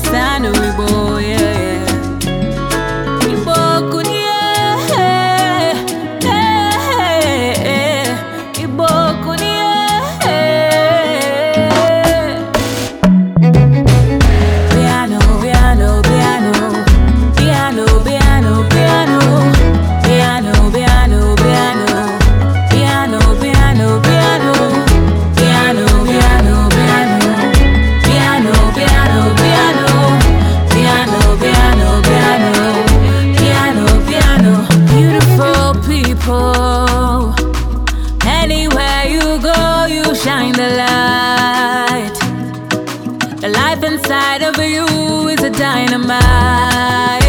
kwa no wigbo W is a dynamite.